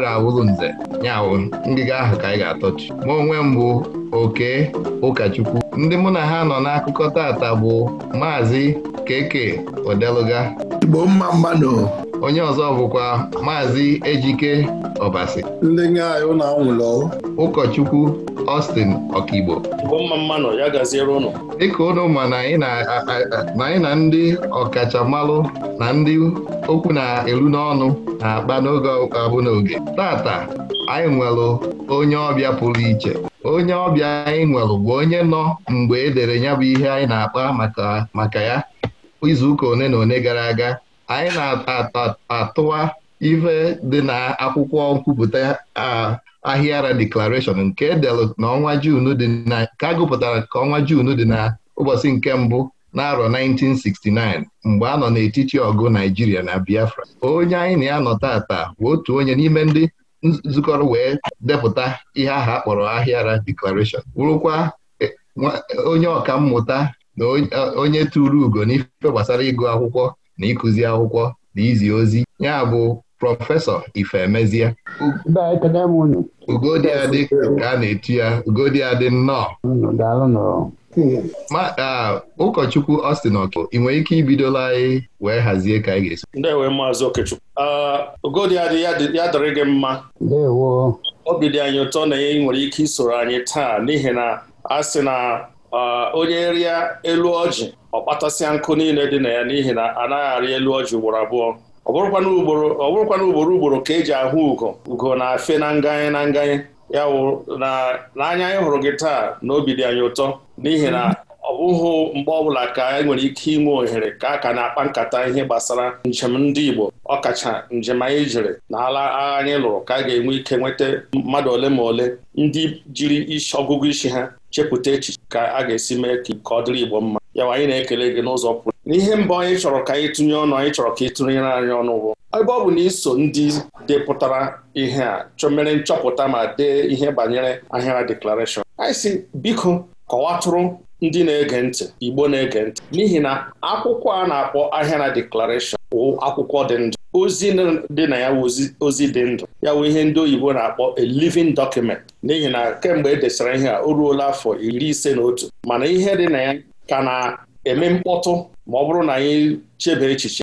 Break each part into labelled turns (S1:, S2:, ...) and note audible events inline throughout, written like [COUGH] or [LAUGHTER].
S1: agaghị awụrụ nze ya awụ ngịga ahụ ka anyị ga-atọchi ma onwe mbụ oke ụkọchukwu ndị mụ na ha nọ n'akụkọ tata bụ maazị keke odeluga Igbo mma mmanụ onye ọzọ bụkwa maazị ejike ọbasi ndị anyị ụlọ anwụlọ ụkọchukwu Austin ọkaigbo dịka ụnụ ma na anyị na ndị ọkachamalụ na ndị okwu na-elu n'ọnụ na-akpa n'oge ọkụkọ abụ oge tata anyị nwelụ onye ọbịa pụrụ iche onye ọbịa anyị nwelụ bụ onye nọ mgbe edere ya bụ ihe anyị na-akpa maka ya izuụka one na one gara aga anyị na-atụwa ife dị na akwụkwọ nkwupụta ahịara declaration nke edelụ n'ọnwa Jun dị na nke agụpụtara ka ọnwa Jun dị na ụbọchị nke mbụ n'arọ 1969 mgbe a nọ n'etiti ọgụ Naijiria na Biafra onye anyị na ya nọ bụ otu onye n'ime ndị nzukọrọ wee depụta ihe ahụ akpọrọ Ahịara deklaration wụrụkwa e, onye ọka mmụta na onye tụrụ ugo n'ife gbasara ịgụ akwụkwọ na ịkụzi akwụkwọ na izi ozi ya bụ prọfesọ Ifemezie ugodị adị ka a na-etu ya ugodị adị nnọọ ụkọchukwu Austin Oke ị nwere ike ibidola anyị wee hazie ka anyị ga-esi
S2: ndewe maazị Okechukwu ogodi ya dịrị gị mma obi dị anyị ụtọ na ị nwere ike isoro anyị taa n'ihi na a sị na onye rịa elu ọjị ọ kpatasịa nkụ niile dị na ya n'ihi na anaghị arị elu ọjị ugboro abụọ ọ bụrụkwana ugboro ugboro ka eji ahụ ugo ugo na-afe na nganye na nganye ya wụ na n'anya anyị hụrụ gị taa na obi dị anyị ụtọ n'ihi na hmm. ọ bụghị mgbe ọbụla ka e nwere ike inwe ohere ka a ka na-akpa nkata ihe gbasara njem ndị Igbo ọkacha njem anyị jiri na ala agha anyị lụrụ ka a ga-enwe ike nweta mmadụ ole ma ole ndị jiri isi ọgụgụ isi ha chepụta echiche ka a ga-esi mee ka ọ dịrị Igbo mma yawa anyị na-ekele gị n'ụzọ pụrụ n'ihe mbụ anyị chọrọ ka anyị tụnye ọnụ anyị chọrọ ka ị tụnyere anyị ọnụ ụgwọ ebe ọ bụ na iso ndị depụtara ihe a chọmere nchọpụta ma dee ihe banyere ahịara deklarashọn anyị si biko kọwatụrụ ndị na-ege ntị Igbo na-ege ntị n'ihi na akwụkwọ a na-akpọ ahịa na deklarashọn wụ akwụkwọ dị ndụ ozi dị na ya ozi dị ndụ ya wụ ihe ndị oyibo na-akpọ a living document n'ihi na kemgbe e desara ihe a o ruola afọ iri ise na otu mana ihe dị na ya ka na-eme mkpọtụ ma ọ bụrụ na anyị chebe echiche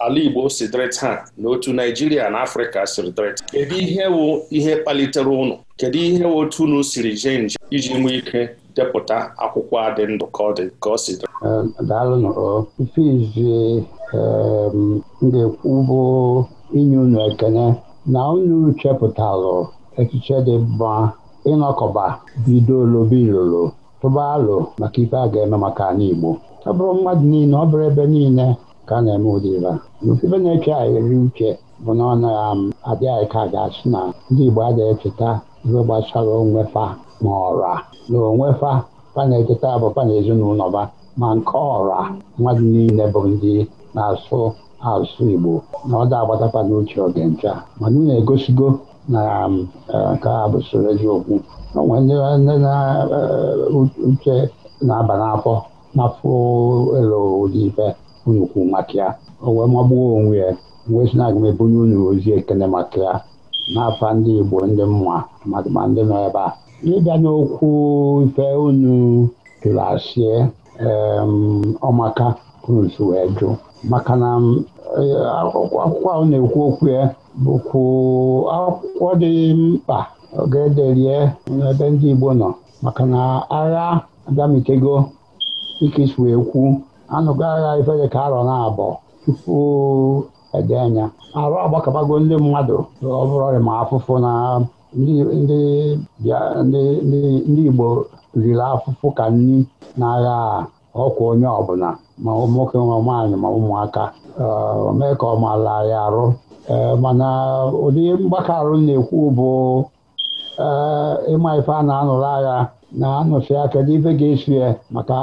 S2: ala Igbo si dịrị taa na Naịjirịa na Afrịka siri dịrị Kedu ihe wụ ihe kpalitere ụnụ kedu ihe wụ otu unu siri jee iji nwee ike depụta akwụkwọ a dị ndụ ka ọ dị ka ọ si dị
S3: daalụ nọrọ ife ga-ekwu bụ inye unu ekene na unu chepụtalụ echiche dị mma ịnọkọba bido lobe ilolo tụba alụ maka ife a ga-eme maka Igbo ọ bụrụ mmadụ niile ọ bụrụ ebe niile ka a na-eme ụdị ibe a ife na-eke anyị eri uche bụ na ọ naghị um, adị anyị ka ga-asị na ndị Igbo adịghị echeta ife gbasara onwefa ma ọra na onwefa fa na-echeta bụ na ezinụlọ ba ma nke ọra mmadụ niile bụ ndị na-asụ asụsụ Igbo na ọ da agbatakwa n'uche oge ncha mana na um, egosigo eh, na nke a bụ soro eziokwu o nwere ndị na eh, uche na-aba n'afọ n'afọ elu ụdị ife unu kwuru maka ya o wee magbuo onwe ya na aga m ebunye unu ozi ekele maka ya n'afa ndị Igbo ndị mma ma ndị nọ ebe a ịbịa n'okwu ife unu jụrụ asị ọmaka kruzu wee jụ maka na akwụkwọ ahụ na-ekwu okwu ya bụkwu akwụkwọ dị mkpa oge n'ebe ndị Igbo nọ maka na agha abịamitego ikisi wee kwu anụgo agha ifere ka arọ na abọ tupu ede anya arụ agbakọbago ndị mmadụ ọ bụrụ ma afụfụ na ndị Igbo riri afụfụ ka nri n'agha ọkwa onye ọbụla ma nwoke ma nwaanyị ma ụmụaka mee ka ọ ya arụ e, mana ụdị mgbakọ arụ na-ekwu bụ e, ịma ife a na-anụrụ agha na-anọsi aka n'ife ga-esi ya maka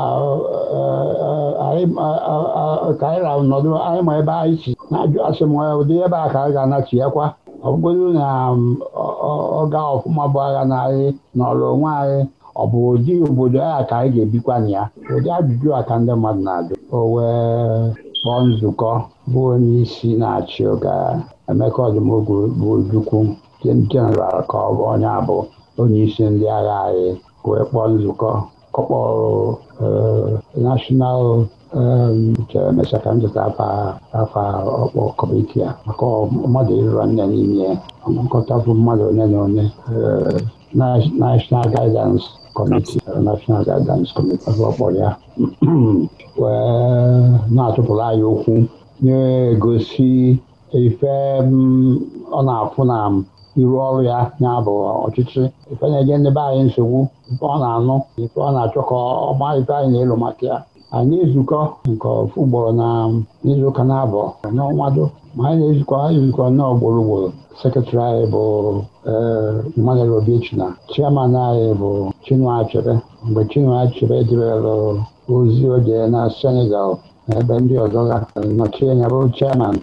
S3: ka anyị rahụ nọdụ anyị ma ebe anyị si na-ajụ asị m ụdị ebe a ka anyị ga-anachi ya kwa ọ na ọ gaa ọfụma bụ agha na anyị nọrọ onwe anyị ọ bụ ụdị obodo a ka anyị ga-ebikwa na ya ụdị ajụjụ a ka ndị mmadụ na-ajụ o kpọọ nzukọ bụ onye isi na-achị ụga Emeka Ọdụmogwu bụ Ojukwu jeneral ka ọ bụ onye abụ onye isi ndị agha anyị wee kpọọ nzukọ kọkpọrụ nashọnal emecha ka m zụta afa ọkpọ kọmiti a maka mmadụ ịrụra nne n'ime nkọta bụ mmadụ onye na onye National Guidance Committee National Guidance ọ kpọrọ ya wee na-atụpụrụ anyị okwu na-egosi ife ọ na-afụ na ịrụ ọrụ ya ya bụ ọchịchị ife na-enye ndị be anyị nsogbu ife ọ na-anụ ife ọ na-achọ ka ife anyị na-elu maka ya anyị ezukọ nke ofu ugboro na ụka na abụ n'ọnwado ma anyị na-ezukọ anyị ezukọ nnọọ ugboro ugboro anyị bụ eh, Emmanuel Obichi na chairman anyị bụ Chinua Achebe mgbe Chinua Achebe debere ozi ojee na Senegal ebe ndị ọzọ gafere nọchie anya chairman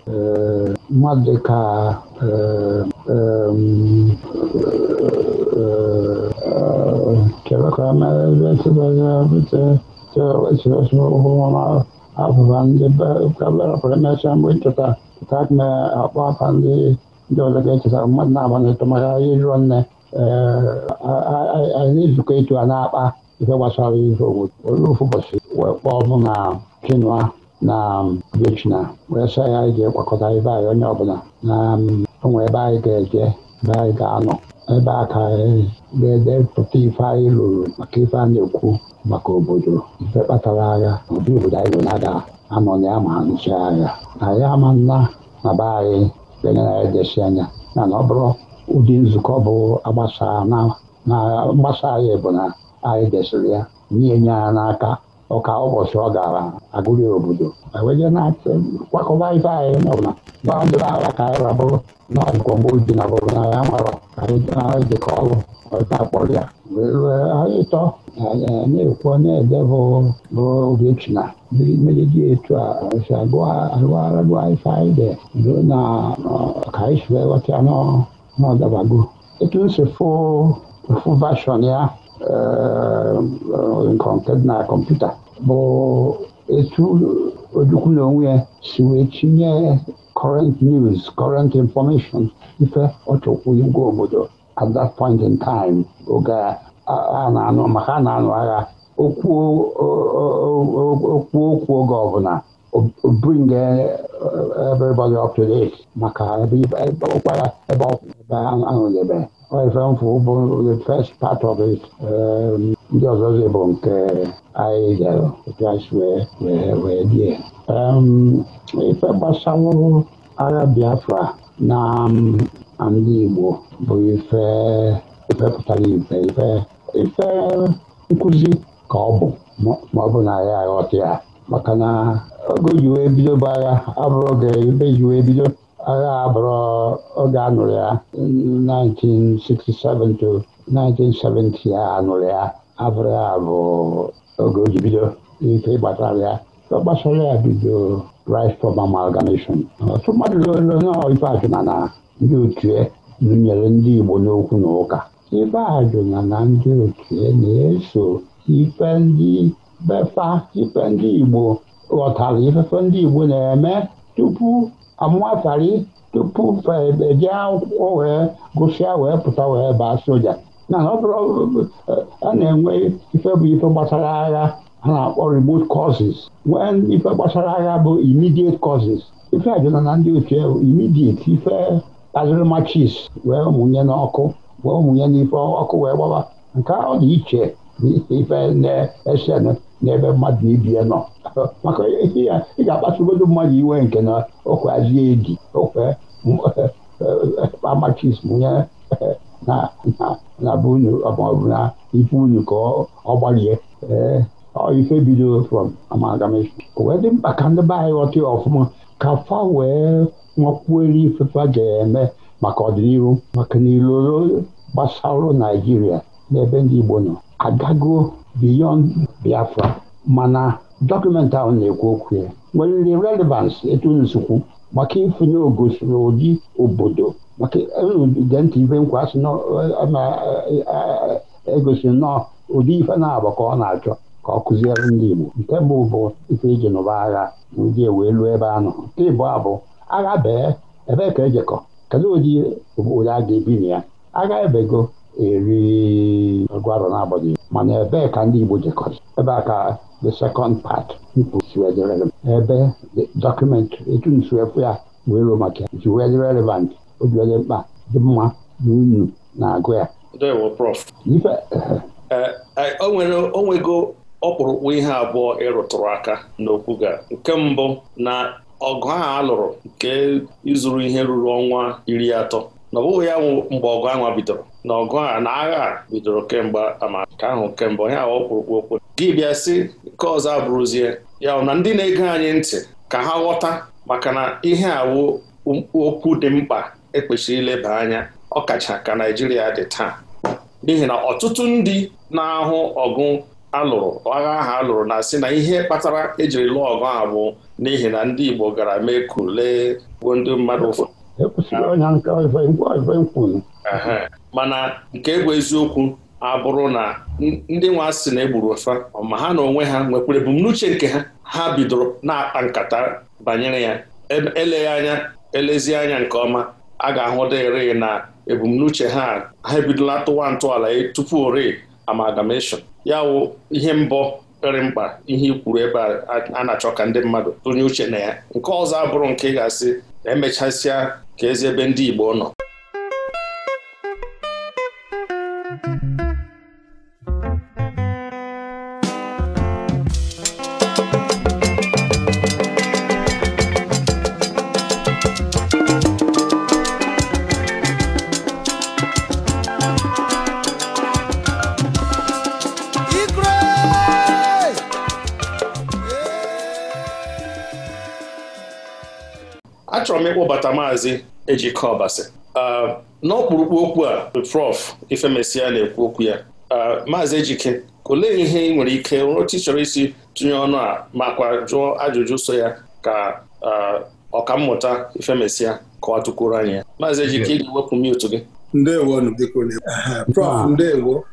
S3: mmadụ dịka keeaaụa ndị bere emechaa mgbe nchọta pụta me akpọ afa ndị ọzọ ga-echetara mmadụ na-agba n'ịtụmara ịrọ nne anyị na-ezukọ etu a na-akpa ife gbasara ihe obodo olee ụbọchị wee kpọọ ọbụ na quinoa na um, ejula wee sị ya anyị ga-ekpakọta ebe anyị onye ọbụla na um, onwe ebe anyị ga-eje ebe anyị ga-anọ ebe a ka ga-edepụta ife anyị lụrụ maka ife a na-ekwu maka obodo ife kpatara agha ụdị obodo anyị lụrụ aga anọ na ya ma ha nụcha agha anyị ama nna na be anyị enyere anyị desi anya na ọ bụrụ ụdị nzukọ bụ agbasa na mgbasa anyị bụ na anyị desịrị ya nye nye ya n'aka ọka ụbọchị ọ gara agụghị obodo eweje na-achị kwakọba ife anyị Gbaa ndị gbandụrụ ala ka anyị rabụrụ n'ọgwọmgbo ji na bụrụ na ya nwere ka anyị dị jikọ ọrụ ọta kpọrọ ya wee rue anyị tọ na-ekwu na-ede bụ ogechi na mmiri dị etu a e si agụgharagụ ife anyị dị ruo na ka anyị si wee ghọta ya n'ọdabago etu nsi fụ fụ vashọn ya nke na kọmputa bụ etu ojukwu na onwe ya si wee tinye current news current information ife ọchọkwu igwe obodo at that point in time oge a na-anụ maka a na-anụ agha okwu okwu oge ọbụla bring everybody up to date maka ebe ụkwara ebe ebe ahụ nyebere ifemfụ bụ the first part of it ndị ọzọ ọzọzi bụ nke anyị jere wee die ife gbasawụrụ agha Biafra na ndị Igbo bụ ife ife pụtara ife ife nkụzi ka ọ bụ ma ọ bụ na ya aghọta ya maka na oge ji wee bido bụ agha abụrụ oge ebe ji wee bido agha abụrụ oge anụrụ ya 1967 to 1970 a anụrụ ya abụrụ ya bụ oge o ji bido ike ịgbatara ya gbasara ya bido right for amalgamation ọtụ mmadụ lụrụ ajụna na ndị otue n'ụnyere ndị Igbo n'okwu na ụka ife ajụna na ndị otue na-eso ife ndị befa ife ndị Igbo ghọtara ifefe ndị Igbo na-eme tupu amụatara tupu eje akwụkwọ wee gụsịa wee pụta wee baa soja na a na-enwe ife bụ ife gbasara agha ha na-akpọ remote causes nwee ife gbasara agha bụ immediate causes ife ajụna na ndị otu imidiet ife kpaziri machis wee mụnye n'ọkụ wee mụnye n'ife ọkụ wee gbaba nke ọ dị iche na ife na-esenụ n'ebe mmadụ ibie nọ maka ya ị ga-akpasugodo mmadụ iwe nke na okwezie edi okwe eh, eh, amachism nye eh, na be maọbụ na ife unu ka ọ gbalie ife bido from amalgamation wee dị mkpa ka ndị be anyị ghọta ọfụma ka fa wee nwakwuere ga-eme maka ọdịnihu maka na iloro gbasara Naijiria n'ebe ndị Igbo nọ agago beyond Biafra mana dọkụmentị ahụ na-ekwu okwu ya nwere ndị relevans etu nsukwu maka ifunye ogo n'ụdị obodo maka gentị e nkwa asị na-egosi nnọọ ụdị ife na-agba ka ọ na-achọ ka ọ kụziere ndị Igbo nke mbụ bụ ife iji e nụba agha ndị e wee lụọ ebe a nọ nke ịbụ abụ agha bee ebe ka ejekọ kedu ụdị obodo a ga-ebi na ya agha ebego eri ngwara n'agbanyeghị mana ebe ka ndị Igbo jekọrị, ebe a ka the second part ebe dọkụmentịrị etu nsuefu ya wee maka ya ji wee dị relevant oji mkpa dị mma na unu na-agụ ya e,
S2: e, o nwego ọkpụrụkpụ ihe abụọ ịrụtụrụ aka n'okwu ga nke mbụ na ọgụ a lụrụ nke ịzụrụ ihe ruru ọnwa iri atọ na ya wụ mgbe ọgụ ahụ bidoro na ọgụ a na agha bidoro kemgbe amaka ahụ kemgbe onye ahụ kwurukwu okwu gị bịa si nke ọzọ abụrụzie ya na ndị na-ege anyị ntị ka ha ghọta maka na ihe awụ okwu dị mkpa ekpechiri ileba anya ọkacha ka naijiria dị taa n'ihi na ọtụtụ ndị na-ahụ ọgụ alụrụ agha ahụ alụrụ na-asị na ihe kpatara ejiri lụọ ọgụ ahụ bụ n'ihi na ndị Igbo gara mee kule gbuo ndị mmadụ ụfọdụ
S3: ekwesịrị onye nke ife nkwunu
S2: mana nke bụ eziokwu abụrụ na ndị nwa sị na egburu ofa ma ha na onwe ha nwekwara ebumnuche nke ha ha bidoro na-akpa nkata banyere ya eleghị anya elezi anya nke ọma a ga-ahụ dịrị na ebumnuche ha ha ebidola tụwa ntọala e, tupu ore amalgamation ya wụ ihe mbọ pere mkpa ihe ikwuru ebe a na-achọ ka ndị mmadụ tụnye uche na ya nke ọzọ abụrụ nke ị ga-asị na emechasịa ka ezi ebe ndị Igbo nọ achọrọ m ịkpọbata maazị Ejike Ọbasi ah, n'okpuru okwu a Prof Ifemesia na-ekwu okwu ya ah, maazị Ejike olee ihe ị nwere ike otu ị chọrọ isi tụnye ọnụ a makwa jụọ ajụjụ so ya ka ah, ọkammụta Ifemesịa kọwatụkwuru anyị ya maazị Ejike ị ga-ewepụ gị
S4: ndewo ndewo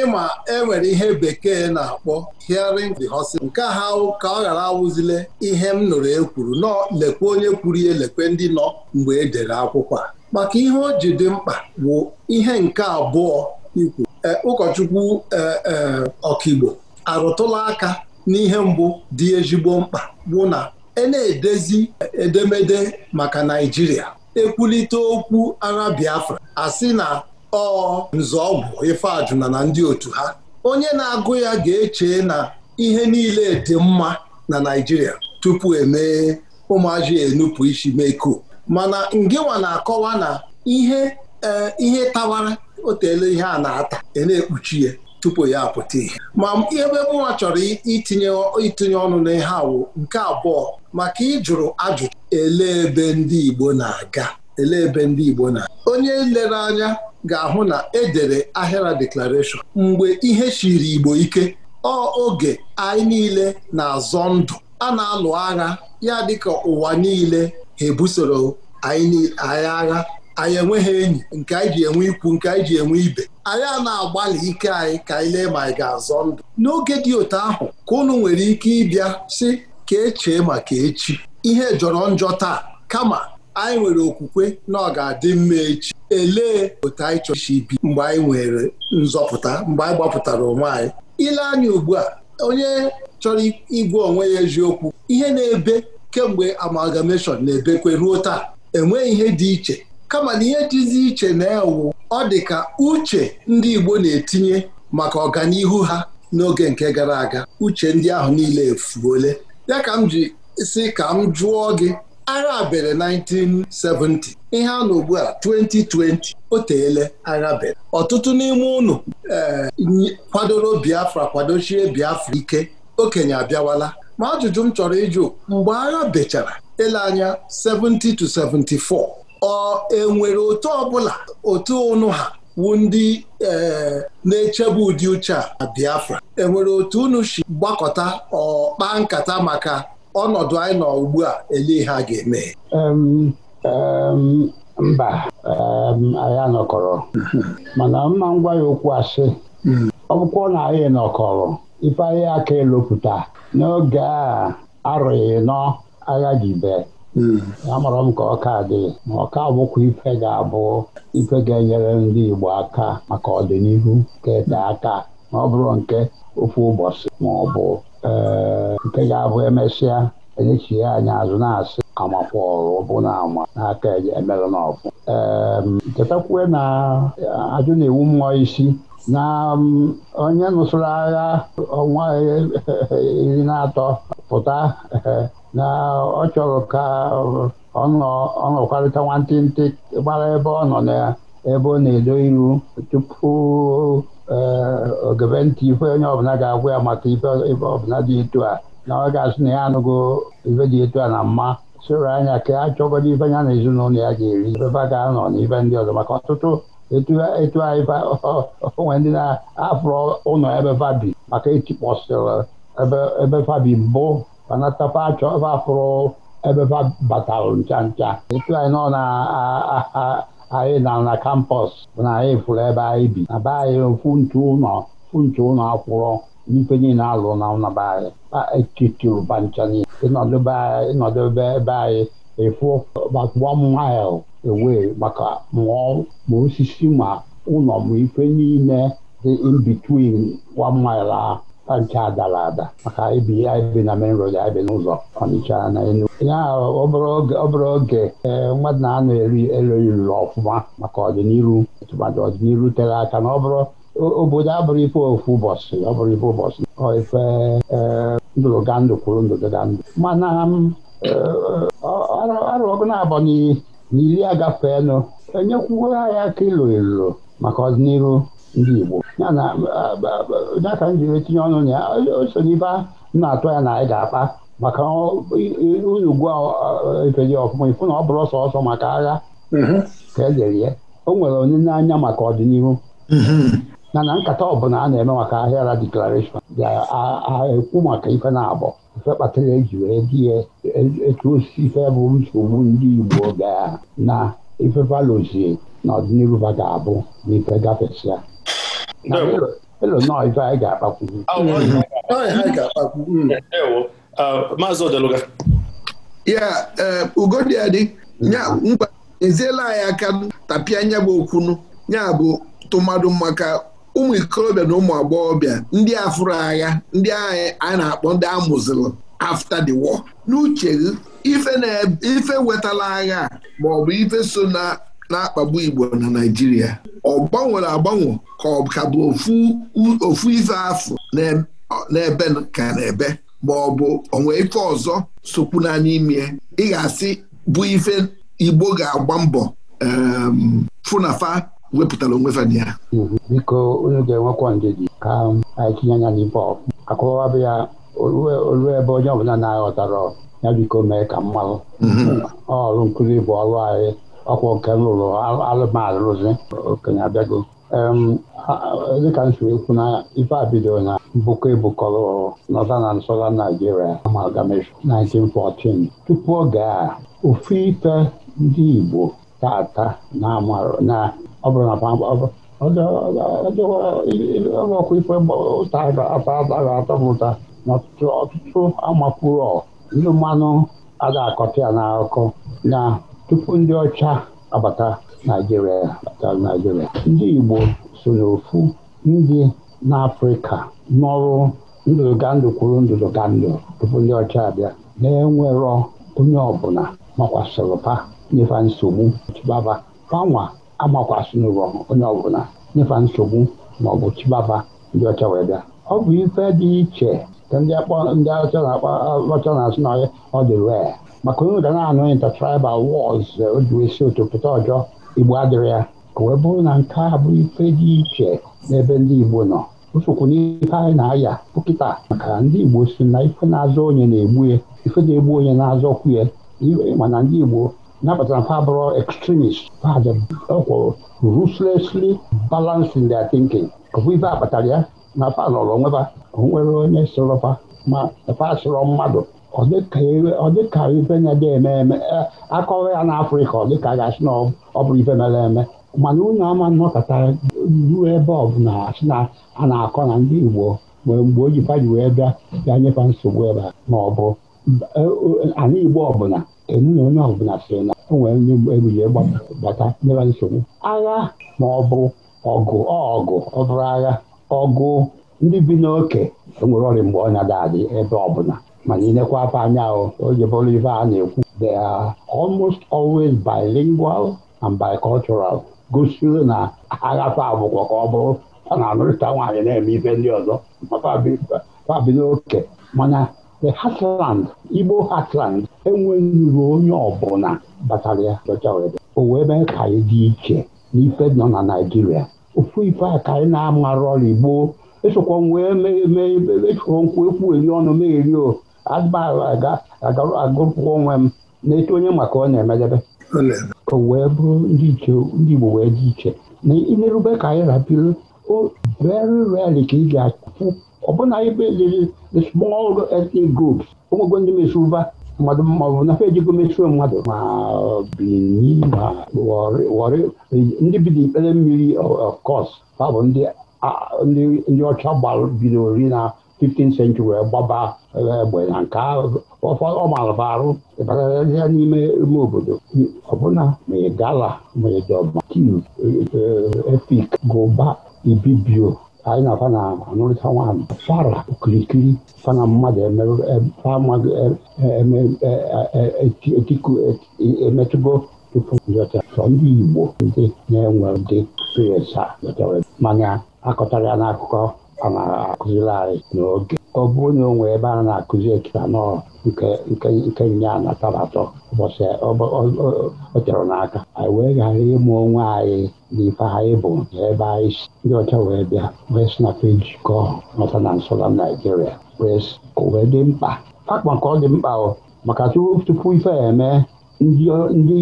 S4: ịma enwere ihe bekee na-akpọ hearing the horse nke ha ka ọ ghara awụzile ihe m nụrụ ekwuru nọ lekwe onye kwuru ihe lekwe ndị nọ mgbe e dere akwụkwọ maka ihe o ji dị mkpa bụ ihe nke abụọ ikwu e, ụkọchukwu e, e, ọkaigbo arụtụla aka n'ihe mbụ dị ezigbo mkpa bụ na e na-edezi edemede maka Naịjirịa ekwulite okwu agha Biafra asị na ọ nzọọgwụ ifeajụ na ndị otu ha onye na-agụ ya ga-eche na ihe niile dị mma na Naijiria tupu emee ụmụazị enupụ isi meko mana ngịnwa na-akọwa na ihe e, ihe tawara otele ihe a na-ata ena na-ekpuchi ya tupu ya apụta ihe ma ebe nwa chọrọ itinye itinye ọnụ n'ihe awụ nke abụọ maka ịjụrụ ajụjụ ele ebe ndị Igbo na-aga ele ebe ndị Igbo na onye lere anya ga-ahụ na edere Ahịra Declaration mgbe ihe chiri Igbo ike ọ oge anyị niile na-azọ ndụ a na-alụ agha ya dịka ụwa niile ha ebusoro anyị agha anyị enweghị enyi nke anyị ji enwe ikwu nke anyị ji enwe ibe anyị a na-agbalị ike anyị ka anyị lee ma anyị ga-azọ ndụ n'oge dị otu ahụ ka unu nwere ike ịbịa si ka echee maka echi ihe jọrọ njọ taa kama anyị nwere okwukwe na ọ ga-adị mma echi elee otu anyị chọrọ isi bi mgbe anyị nwere nzọpụta mgbe anyị gbapụtara onwe anyị ile anya ugbu a onye chọrọ igwe onwe ya eziokwu ihe na-ebe kemgbe amalgamation na-ebekwe ruo taa enweghị ihe dị iche kama na ihe dịzi iche na-ewu ọ dị ka uche ndị Igbo na-etinye maka ọganihu ha n'oge nke gara aga uche ndị ahụ niile efuole ya ka m ji si ka m jụọ gị agha bere 1970 ihe a n'ugbua ugbu a 2020 o teele agha ọtụtụ n'ime ụnụ eh, kwadoro Biafra kwadochie Biafra ike okenye abịawala ma ajụjụ m chọrọ ịjụ mgbe agha bechara ele anya 70 to ọ enwere otu ọbụla otu ụnụ ha wu ndị eh, na-echebe ụdị uche a Biafra enwere otu unu si gbakọta ọ kpaa nkata maka ọnọdụ anyị nọ ugbu a ele ha ga-eme
S3: mba anyị anọkọrọ mana mma ngwa ya okwu asị ọ bụkwa na anyị nọkọrọ ife ahịa aka elopụta n'oge a arụghị nọ agha jibe amara m ka ọka dị ma ọka bụkwa ife ga-abụ ife ga-enyere ndị Igbo aka maka ọdịnihu kete aka ma ọ bụrụ nke ofu ụbọchị ma ọ bụ nke ga-abụ emesịa enyechie anyị azụ na-asị amakwọrụ bụ na ama n'aka emelụ n'ọfụ chetakwe na eh, ajụ na-ewu mmụọ isi na mm, onye nụsụrụ agha ọnwa eh, iri na atọ pụta [LAUGHS] na ọ chọrọ ka eh, ọ nọkwarịta nwantịntị gbara ebe ọ nọ na ebe ọ na-edo iru tupu ogebe ntị ife onye ọbụla ga-agwa ya maka ife ọbụla dị etu a na ọ ga-asị na ya anụgo ife dị etu a na mma soro anya ka a chọgodi ife ya na ezinụlọ ya ga-eri ifefa ga-anọ na ife ndị ọzọ maka ọtụtụ etu anyị onwe ndị na-afụrụ ụlọ ebe fabi maka etikpọsịrị ebe fabi mbụ banatafa achọ ebe afụrụ ebe batalụ ncha ncha etu anyị nọ na anyị na na kampọs na anyị fụrụ ebe anyị bi na be anyị ofu ntu ụlọ funtu ụlọ akwụrọ n'ife niile alụ na naba e. anyị e etitiru bancha niile ịnọdụ ebe anyị efu e about one mile away maka mụọ ma osisi ma ụlọ ma ife niile dị in between one mile ahụ nke adara ada maka ibi ya ibi na main road anyị bi n'ụzọ Ọnịcha na Enugu ya ọ bụrụ oge mmadụ na-anọ eri elu ruru ọfụma maka ọdịnihu tụmadị ọdịnihu tere aka na ọ obodo abụrụ ife ofu ụbọchị ọ ife ụbọchị ọ ife ndụrụgandụ kwuru ndụrụgandụ mana ọgụ na-abọ n'iri agafeenụ enyekwuo ya ka maka ọdịnihu ndị Igbo ya na data m jiri tinye ọnụ na ya o n'ibe na-atụ ya na anyị ga-akpa maka unu gwa efeli ọfụma ifu na ọ bụrụ ọsọ ọsọ maka agha ka ya mm-hmm. o nwere onye anya maka ọdịnihu mm-hmm. na nkata bụla a na-eme maka ra deklarashọn ga-ekwu maka ife na-abọ ife kpatara eji wee dị ya e, e, etu osisi ife bụ nsogbu ndị Igbo ga na ife valozie n'ọdịnihu ba ga-abụ na ife gafesịa maazị
S2: uh, mm-hmm. ya ugodi
S5: eziela anyị aka tapịa anya bụ okwunu ya bụ tụmadụ maka ụmụ ikorobịa na ụmụ agbọghọbịa ndị afụrụ agha ndị agha a na-akpọ ndị amụzilụ after the war n'uche ife wetala agha maọbụ ife so na na-akpagbu Igbo na Naịjirịa ọ gbanwere agbanwe ka ọ ka bụ ofu ife afọ n'ebe ka n'ebe ma ọ bụ onwe ife ọzọ sokwuna n'ime ị ga-asị bụ ife Igbo ga-agba mbọ fụnafa wepụtara onwe fa ya
S3: mhm. biko onye ga-enwekwa gị ka um, anyị tinye anya n'ibe akọwabụ ya olu ebe onye ọbụla na-aghọtara ya biko mee ka mmanụ mhm. ọrụ nkụzi bụ ọrụ anyị ọkwa nke m rụrụ alụmalụ rụzi okenye abịago dịka m siri ekwu na ife a bidoro na mbụkọ ebukọrọ nọta na nsọla Naijiria amalgamation 1914 tupu oge a ofu ife ndị Igbo tata na-amarụ na ife atara ndị mmanụ ada akọta ya na tupu ndị ọcha abata Naijiria abata ndị Igbo so n'ofu ndị n'Afrịka nọrụ ndụdụgandụ kwuru ndụdụgandụ tupu ndị ọcha abịa na-enwerọ onye ọbụla makwasịrị pa nyefa nsogbu chibaba panwa amakwasịrọ onye ọbụla nyefa nsogbu maọbụ chibaba ndị ọcha wee bịa ọ bụ ife dị iche ka ndị ọcha na-akpa ọcha na-asị na ọ dị ree maka onye ụda na-anụghị tribal wars o ji wee otopụta ọjọ igbo adịrị ya ka wee bụrụ na nke a bụ ife dị iche n'ebe ndị igbo nọ usokwu n'ife anyị na-aya pụkịta maka ndị igbo si na ife na-azọ onye na-egbu ya ife na-egbu onye na-azọkwu ya mana ndị igbo na mfa bụrụ extremist ọkwụ ruthlessly balanced in their thinking ọ bụ ife akpatara ya na fa lọrọ onweba onwere onye sorọfa ma fa sụrọ mmadụ ọ dịka ife nya ga-eme eme akọwa ya n'afrịka ọ dịka ga na ọ bụrụ ife mere eme mana unu ama nnọkọta ruo ebe ọ bụla asị na a na-akọ na ndị igbo nwere mgbe o ji wee bịa bịa nyefa nsogbu ebe ma ọ bụ ana igbo ọbụla enu onye ọbụla sịrị na o nwere onye egbujie gbata nyeba nsogbu agha ma ọ bụ ọgụ ọgụ ọ bụrụ agha ọgụ ndị bi n'oke enwere ọrịa mgbe ọnya adị ebe ọbụla mana ịnekwa afọ anya oge bụrụ ife a na-ekwu they are almost always bilingual and bicultural gosiri na aghafe abụkwa ka ọ bụrụ a na-anụrịta nwaanyị na-eme ife ndị ọzọ fabi n'oke mana the heartland Igbo heartland enweghị ruo onye ọbụla batara ya o wee mee ka anyị dị iche n'ife nọ na Naịjirịa ofu ife a ka anyị na ọrụ Igbo esokwa wee mee mee nkwụ ekwu eri ọnụ megheri o agụpụ onwe m na-eto onye maka ọ na-emelebe O wee bụrụ ndị ndị Igbo wee dị iche na ilerube ka anyị rapịrị o very rarely ka ị ga-achụpụ ọbụna ibe liri the small ethnic groups ụmụgo ndị mesụva mmadụ maọbụ nafe ejigo mesụo mmadụ ma Benin ma Warri ndị bi n'ikpere mmiri of course ha bụ ndị ọcha bidoro ri na 15th century wee gbaba egbe na nke ọ mara arụ ịbatarazịa n'ime ime obodo ọbụna mgala ị gala gụba ibibio anyị na-afa na anụrịta nwaanyị fara okirikiri fana mmadụ emetụgo tupu sọ ndị igbo ndị na-enwe dị experience mana akọtara ya n'akụkọ ọ na-akụziri n'oge ọ bụ na onwe ebe a na-akụzi ekipanọl nke nya na tabatọ ụbọchị ọ chọrọ n'aka anyị wee ghara ịmụ onwe anyị na ife anyị bụ ebe anyị si ndị ọcha wee bịa wee sị na fejikọ nọta na nsọla naijiria wee dị mkpa akpa nke ọ dị mkpa maka tupu ife eme ndị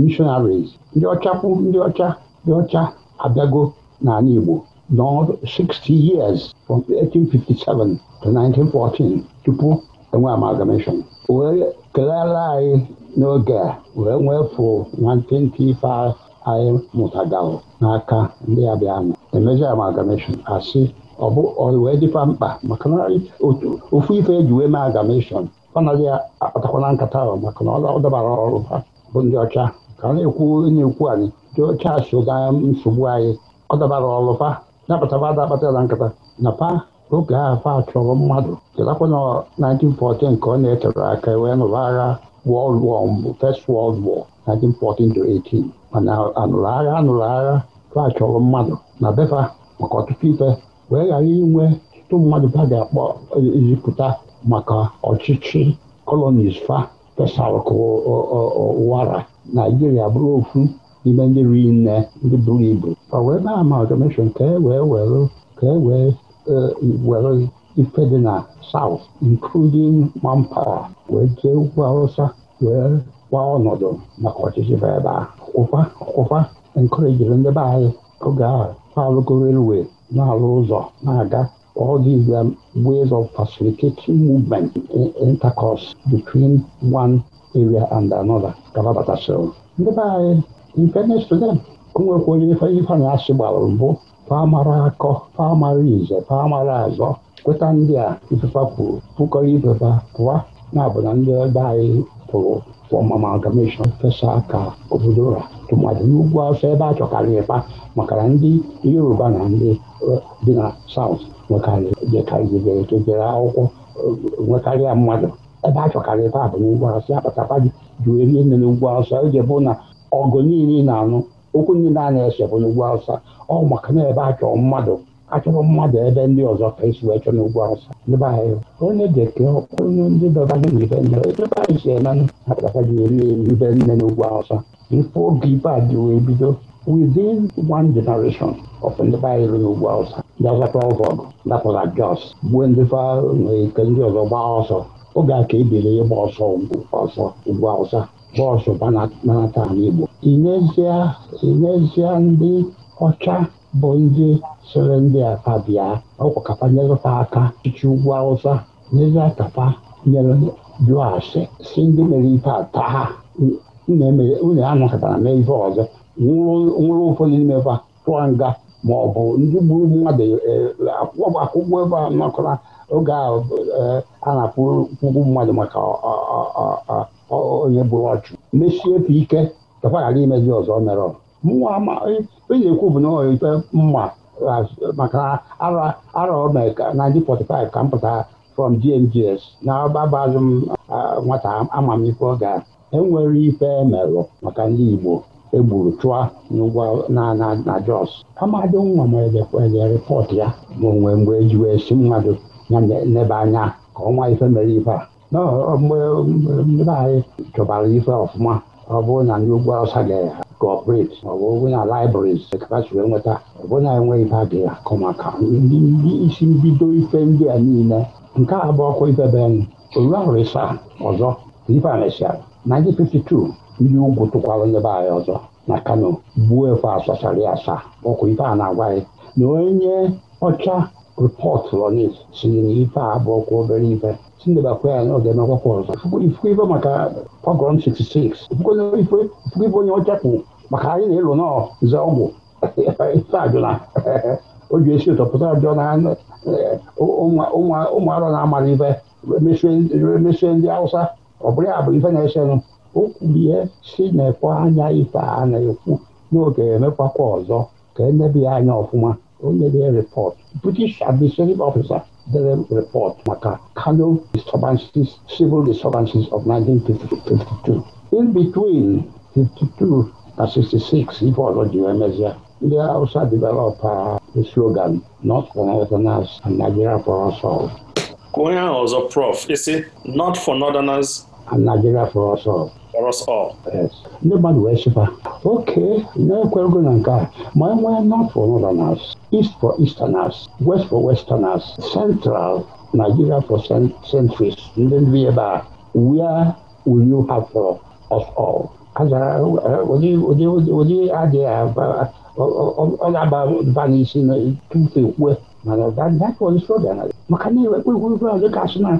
S3: mishonaris ndị ọcha kwu ndị ọcha ndị ọcha abịago n'ala Igbo now 60 years from 1857 to 1914 tupu enwe amalgamation wee kelere anyị n'oge a wee nwefụ na mpempe ife anyị n'aka ndị abịanụ emezi amalgamation asị wee dịkwa mkpa maka na ofu ife eji wee mee amalgamation ọ naghị akpatakwana nkata ahụ maka na ọ dabara ọrụ ha bụ ndị ọcha ka na-ekwu onye ekwu anyị ndị ọcha so nsogbu anyị ọ dabara ọlụfa napụtaba na nkata na pa oge ahụ fa chọrọ mmadụ chetakwa na 1914 ka ọ na-etere aka wee nụrụ agha World War mbụ First World War 1914-18 mana anụrụ agha anụrụ agha fa chọrọ mmadụ na befa maka ọtụtụ ife wee ghara inwe ọtụtụ mmadụ fa ga-akpọ ezipụta maka ọchịchị colonies fa fesara ka Naijiria bụrụ ofu n'ime ndị riri nne ndị buru ibu ọ wee na ama amalgamation ka e wee were ka e wee were ife dị na south including manpower wee jee ugwu awụsa wee gwa ọnọdụ maka ọchịchị bụ ebe a kwụkwa kwụkwa enkorejiri ndị be anyị oge ahụ alụgo railway na-alụ ụzọ na-aga all these um, ways of facilitating movement intercourse between one area and another ka babatasịrị ndị be anyị ife na-esote onwekwa onye ife na-asị gbalụ mbụ famara akọ famara ize famara azọ kweta ndị a ifefa kwuru pụkọrọ ifefa pụwa na-abụ na ndị ebe anyị pụrụ amalgamation fesa aka obodo ụra tụmadị n'ugwu afọ ebe a chọkarị ịba maka na ndị yoruba na ndị dị na saut nwekarị jekarịjere akwụkwọ nwekarịa mmadụ ebe a chọkarị ịba bụ n'ugwu asị apatapa gị jụ eri nne n'ugwu asọ iji bụ na ọgụ niile na-anụ okwu ndị na-ana esepụ n'ugwu awụsa ọ maka na ebe a chọrọ mmadụ achọrọ mmadụ ebe ndị ọzọ ka esi wee chọọ n'ugwu awụsa ebe anyị onye bekee onye ndị dọbanye n'ibe nne ebe anyị si eme apụtaka gị eri ibe nne n'ugwu awụsa ife oge ibe a dị wee bido within one generation of ndị be anyị rụrụ n'ugwu awụsa ndị ọzọta ọgụ ọgụ dapụla jos gbuo ndị fa nke ndị ọzọ gbaa ọsọ oge a ka ebere ịgba ọsọ ọsọ ugwu awụsa bọọsụ banata ala Igbo inezie ndị ọcha bụ ndị siri ndị aka bịa ọkwakapa nyerụta aka chichi ugwu Awụsa n'ezie kapa nyere jụọ si ndị mere ife ata ha unu anakọtara mee ife ọzọ nwụrụ ụfọdụ n'ime fa tụọ nga ma ọ bụ ndị gburu mmadụ e, akwụkwọ ebe a nakọra oge a e, na-akwụgwụ mmadụ maka onye gburu ọchụ mechie efe ike takwa ghara imezi ọzọ mere onye ekwu bụ na ikpe mma maka ara ome ka 1945 ka m pụtara from GMGS na agbabazụ m nwata amamife ọ ga enwere ife emerụ maka ndị Igbo egburu chụa n'ụgwọ na Jos amadị nwa m enye rịpọtụ ya ma onwe mgbe si mmadụ ya anya ka ọnwa ife mere ife a anyị mgbe chọbara ife ọfụma ọ bụrụ na ndị ugwu awụsa ga-kọọpreti ma ọ bụ na laịbrịs kapachiri nweta ọ bụrụ na enweghị ife a ga-akụ maka isi mbido ife ndị a niile nke a bụ ọkwa ifebe anyị oru ahụrụ ịsa ọzọ ife a mesịa 1952 ndị ugwu tụkwara nyebe anyị ọzọ na kano gbuo efe asachara asaa ọkwa ife a na-agwa anyị na onye ọcha rịpọtụrụ si na ife a bụ ọkwa obere ife Chinebe akwụya ya n'oge n'akwụkwọ ọzọ ifukwe ife maka pogrom 66 onye ọchapụ maka anyị na-elu nọ nze ọgwụ [LAUGHS] ife ajụla [LAUGHS] eh, eh, o ji esi ụtọ pụta ajọ na na-amara ife emesie ndị Hausa ọ bụ ife na-esenụ o si na anya ife a na-ekwu n'oge emekwakwa ọzọ ka enebe anya ọfụma dere report maka Kano disturbances, civil disturbances of 1952. In between 52 na 66 ife ọzọ ji wee mezie ndị Hausa develop uh, the slogan not for northerners and Nigeria for us all.
S2: Ka onye ahụ ọzọ prof isi not for northerners Nigeria for us all. For us all. Yes.
S3: ndị mmadụ wee sịkwa oke na-ekwerego na nke a ma e nwee north for northerners east for easterners west for westerners central Nigeria for centuries ndị ndị ebe a where will you have for us all ụdị adịghị ọ na-aba n'isi tupu ekwue mana dapụ isi ọ bịara maka na enwekweghị uru a dịka asị na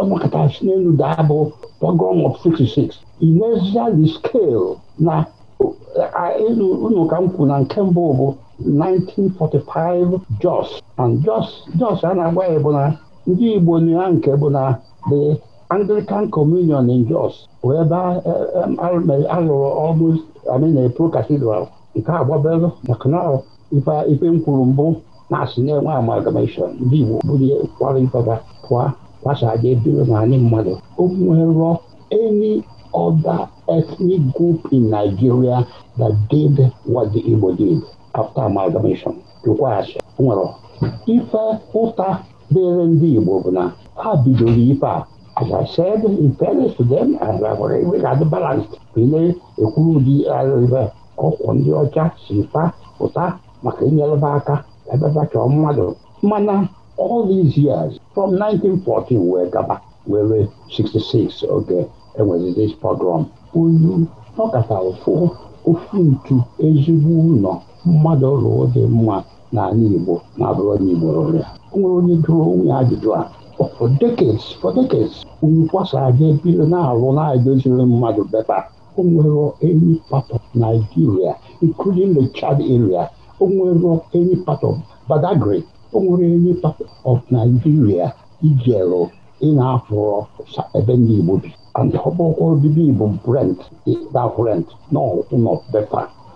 S3: ọnọkọta eh, eh, si n'elu daa bụ pogon of 66 inesia the scale na elu unu ka m na nke mbụ bụ 1945 jos and jos a na-agwa ya bụ na ndị igbo na nke bụ na the anglican communion in jos bụ ebe alụrụ ọrụ amin pro cathedral nke agbabelu na canal ife m mbụ na-asụ na-enwe amalgamation ndị Igbo bụrụ kwara ifaba pụa gbasaje ebiro na anyị mmadụ obuwerọ any other ethnic group in Nigeria that did what the Igbo did after amalgamation jụkwa asị nwere ife ụta dịrị ndị Igbo bụ na ha bidoro ife a as I said in fairness to them as I were regard balanced na-ekwuru ụdị arịba ọkwụ ndị ọcha si fa pụta maka inyeleba aka ebebe chọọ mmadụ mana all these years from 1914 wee gaba were 66 oge enwezidis pogrom unu nọkọta ofu ofu ntu ezigbo ụlọ mmadụ rụọ dị mma n'ala Igbo na-abụrụ onye Igbo rụrụ ya nwere onye jụrụ onwe ajụjụ a oh, for decades for decades unu kwasara ga ebido na-arụ na-edoziri mmadụ bepa o nwere any part of Nigeria including the Chad area o nwere any part of Badagry o nwere any part of Nigeria ijeru ị na-afụrọ ebe ndị Igbo bi ọbụkwa obibi Igbo Brent na Brent na ụlọ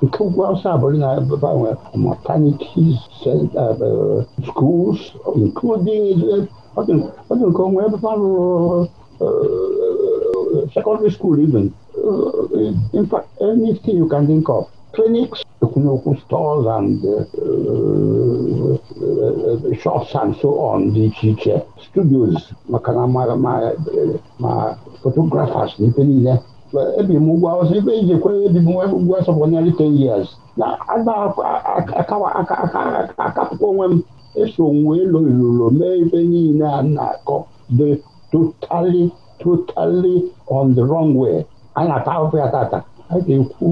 S3: nke ugwu awụsa abụrụ na gbanwe maternities uh, uh, schools including uh, ọ dị nke onwe ebe ha rụrụ secondary school even in fact anything you can think of Phoenix Okunokwu stores and shops and so on dị iche iche studios maka na ma photographers na ife niile ebi m ụgwọ ọzọ ibe iji kwere ebi m ụgwọ ọsọ for nearly 10 years na akapụkwa onwe m eso wee lụrụlo mee ibe niile a na-akọ dị totally totally on the wrong way a na-ata ahụhụ ya tata a ga-ekwu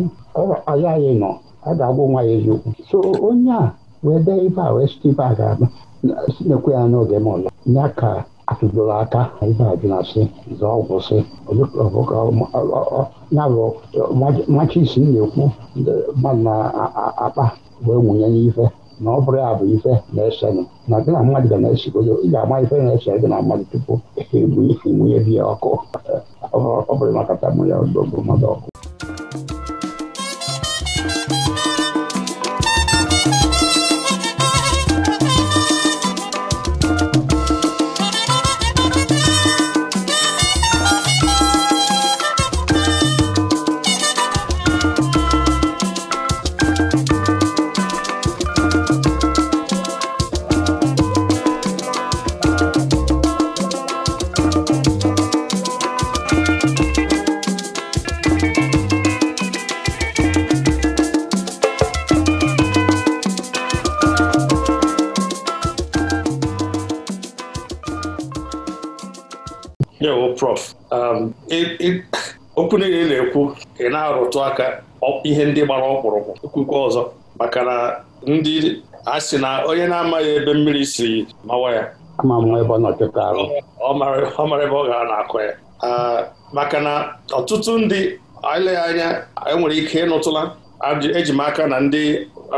S3: ayaghị e nọ e a ga-agwụ nwa ya eziokwu so onye a wee dee ibe a wee site ibe a ga-aba sinekwe ya n'oge [LAUGHS] ma ọlọ ya ka atụdoro aka ibe a jụna sị zọọ ọgwụ sị ya bụ machi isi na-ekwu mmadụ na-akpa wee nwụnye n'ife na ọ bụrụ ya bụ ife na-esenụ na gị na mmadụ ga na-esigodo ị ga-ama ife na-ese gị na mmadụ tupu egbunye biya ọkụ ọ bụrụ makata mụ ya odogo mmadụ ọkụ
S2: okwu niile na-ekwu ị na-arụtụ aka ihe ndị gbara ọkpụrụkpụ ekwukwa ọzọ maka na ndị a sị na onye na-amaghị ebe mmiri si mawa ya ọ mara ebe ọ gara na akụ ya maka na ọtụtụ ndị eleghị anya enwere ike ịnụtụla eji e m aka na ndị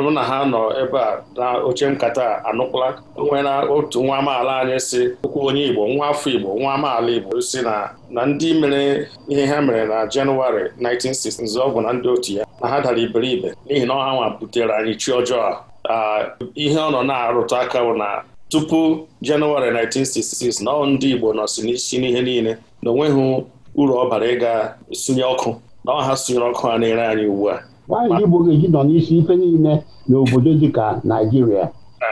S2: mụ na ha nọ ebe a na oche nkata anụkwụla nwere otu nwa amaala anyị si okwu onye Igbo nwa afọ Igbo nwa amaala Igbo si na na ndị mere ihe ha mere na Jenụwarị 1960 ọgwụ na ndị otu ya na ha dara iberibe n'ihi na ọha nwa butere anyị chi ọjọọ a ihe ọ nọ na-arụtụ aka bụ na tupu Jenụwarị 1966 na ndị Igbo nọsi n'isi n'ihe niile na onweghị uru ọ bara ịga sunye ọkụ na ọha sunyere ọkụ ha na-ere anyị ugbu a
S3: nwaanyị Igbo ga-eji nọ n'isi ife niile n'obodo dịka Naijiria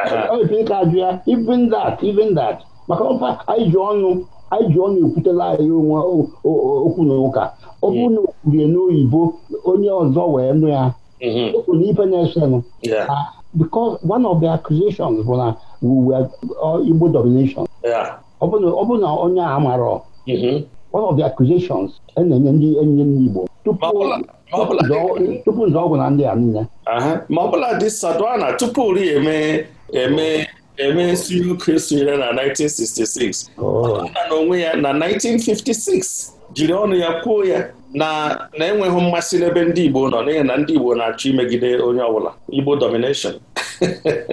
S3: ka ajụ ya even that even that maka ọba anyị ji ọnụ anyị ji ọ na-ekwutela anyị onwe okwu na ụka ọ bụrụ hmm. na o kwurie n'oyibo onye ọzọ wee nụ ya hmm. okwu na ibe na-esenụ ah, because one of the accusations bụ na uh, Igbo domination ọ bụ na onye a amarọ mm-hmm. one of the accusations e na-enye ndị enyi ndị Igbo tupu nzọọgwụ na ndị a niile
S2: ma ọbụla dị sadwana tupu ri eme eme eme nsuri oke sonyere na 1966 na onwe ya na 1956 jiri ọnụ ya kwuo ya na na-enweghị mmasị n'ebe ndị Igbo nọ n'ihi na ndị Igbo na-achọ imegide onye ọbụla Igbo domination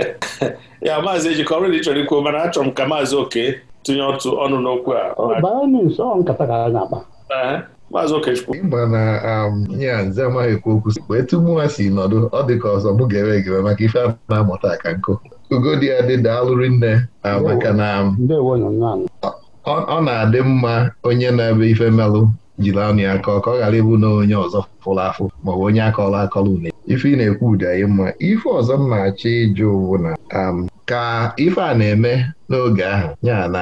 S2: [LAUGHS] ya maazị ejikọ ọrụ chọrọ ikwuo mana achọrọ m ka maazị oke tinye ọtụ ọnụ n'okwu a maazị okechukwu mba na
S1: ya um, nze amaghị ekwu okwu wee tụ mụ ha si nọdụ ọ dị ka ọzọ mụ ga-ewe egere maka ife a na-amụta aka nkụ Ugodiya dị daalụrị nne maka na ọ na-adị mma onye na-ebe ife melụ jiri anụ ya kọọ ka ọ ghara ịbụ na onye ọzọ fụrụ afụ maọbụ onye akọrọ akọrọ une ife ị na-ekwu ụdị mma ife ọzọ m na-achọ ịjụ bụ na um, ka ife a na-eme n'oge ahụ ya na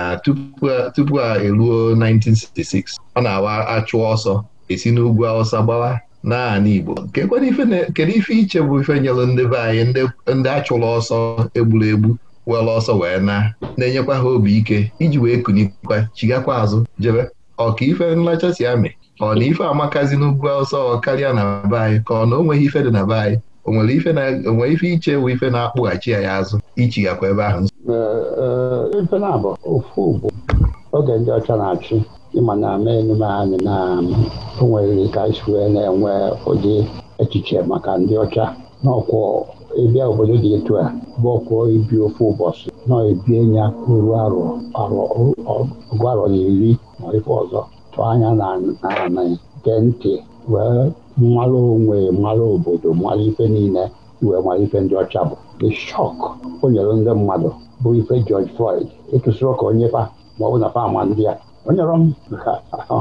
S1: tupu a eruo 1966 ọ na-awa achụ ọsọ esi n'ugwu Awụsa gbawa naanị Igbo kedu ife iche bụ ife nyelụ ndị be anyị ndị achụlụ ọsọ egburu egbu were ọsọ wee na na-enyekwa ha obi ike iji wee kunikwa chigakwa azụ jebe ọka ife nlachasi amị ọ na ife amakazi n'ugwu ọsọ karịa na be anyị ka ọ na onweghị ife dị na be anyị onwere ife iche bụ ife na-akpụghachi ya ya azụ ichigakwa ebe ahụ
S3: oge ndị ọcha na-achị ịma na ama enume anyị na um, o nwere ka isi wee na-enwe ụdị echiche maka ndị ọcha n'ọkwọ ịbịa obodo dị etu a bụ ọkwọ ibi ofe ụbọchị na ebie ya ruo arọ ọgụ arọ na iri ma ife ọzọ tụọ anya na ala nke ntị wee mmalụ onwe mmalụ obodo mmalụ ife niile wee mmalụ ife ndị ọcha bụ the shock o nyere ndị mmadụ bụ ife George Floyd ịtụsịrị ka onye fa ma ọ bụ na fama ndị a onye rọ m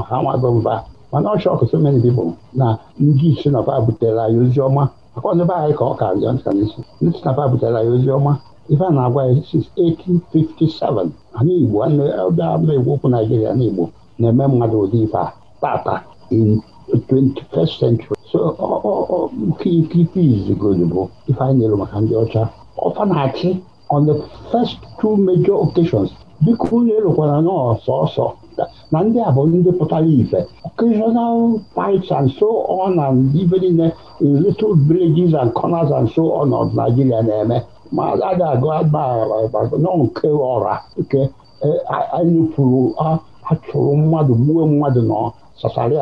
S3: ha nwabụ mba mana ọ shọkụ so many people na ndị isi napa butere anyị ozi ọma maka ọnụbe anyị ka ọ ka bịa nka n'isi ndị isi napa butere anyị ozi ọma ife a na-agwa ya since 1857 anyị Igbo ọbịa egwu okwu Naijiria na Igbo na-eme mmadụ ụdị ife a tata in 21st century so nke ife bụ ife anyị nyere maka ndị ọcha ọfa na-achị on the first two major occasions biko unu elokwara na ọsọsọ na ndị a bụ ndị pụtara ife occasional fights and so on ibe niile in little villages and corners and so on ọnọdụ Nigeria na-eme ma a ga a, nke ọra achụrụ mmadụ gbuo mmadụ nọ sasarị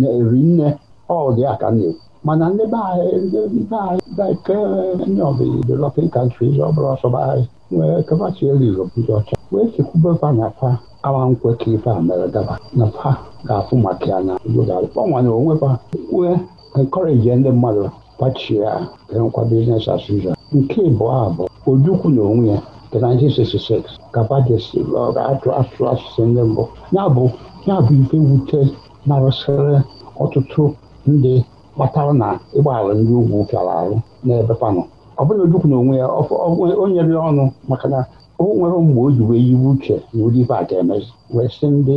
S3: na-eri nne mana ndị ọcha wee chekwuba na fa awa nkwe ife a mere daba na fa ga-afụ maka ya na gbanwanye onwe fa wee encourage ndị mmadụ kpachie ya nkwa bizinesi as usual nke ịbụọ a bụ ojukwu na onwe ya nke 1966 atụ atụ asụsụ ndị mbụ ya bụ ife wute narụsịrị ọtụtụ ndị kpatara na ịgbaghara ndị ugwu pịara arụ n'ebe panụ ọ ojukwu na onwe ya onyere ya ọnụ maka na o nwere mgbe o ji wee yiwe uche na ụdịbe a ga-emezi ndị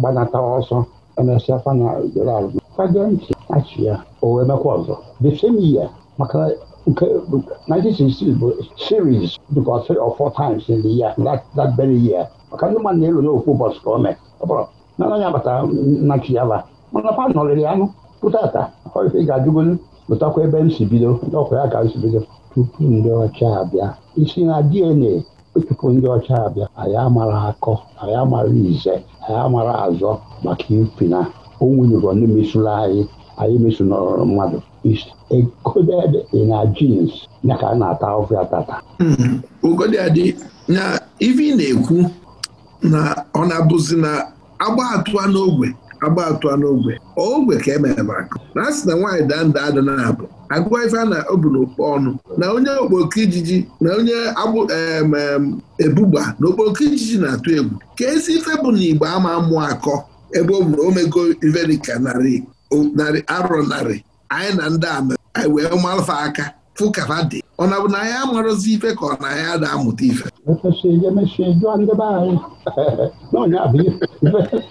S3: gbanata ọsọ emesịa fana jere azụ kpagee ntị achị ya o wee mekwa ọzọ the same year maka nke 1966 bụ series because three or four times in the year that, that very year maka ndị mmadụ na-elu n'okwu ụbọchị ka o mee ọ bụrụ na anaghị abata na chiyaba mana fa nọrịrị anụ pụtata ọife ga-ajụgolu pụtakwa ebe m si bido ọkwa ya ka m si bido tupu ndị ọcha abịa isi na DNA tupu ndị ọcha abịa anyị amara akọ anyị amara ize anyị amara azọ maka ifi na onwunyụrọ n'emesụrụ anyị anyị mesụnọrọ mmadụ ekoded in our genes ya ka a na-ata ọfịa tata
S5: ugodịadị hmm, na ivi na-ekwu na ọ na-abụzi na agba atụa n'ogwe agba atụa n'ogbe ogbe ka emere maka na na nwaanyị daa nda ada na abụ agụwa ife a na obu n'okpo ọnụ na onye okpoko ijiji na onye ebugba na okpoko ijiji na-atụ egwu ka ezi ife bụ na igbo ama amụ akọ ebe ọ bụrụ omego iverika narị arọ narị anyị na ndị ama anyị wee malụfa aka fụkafa dị ọ na bụ na anyị amarụzi ife ka ọ na anyị ada amụta ife
S3: [LAUGHS]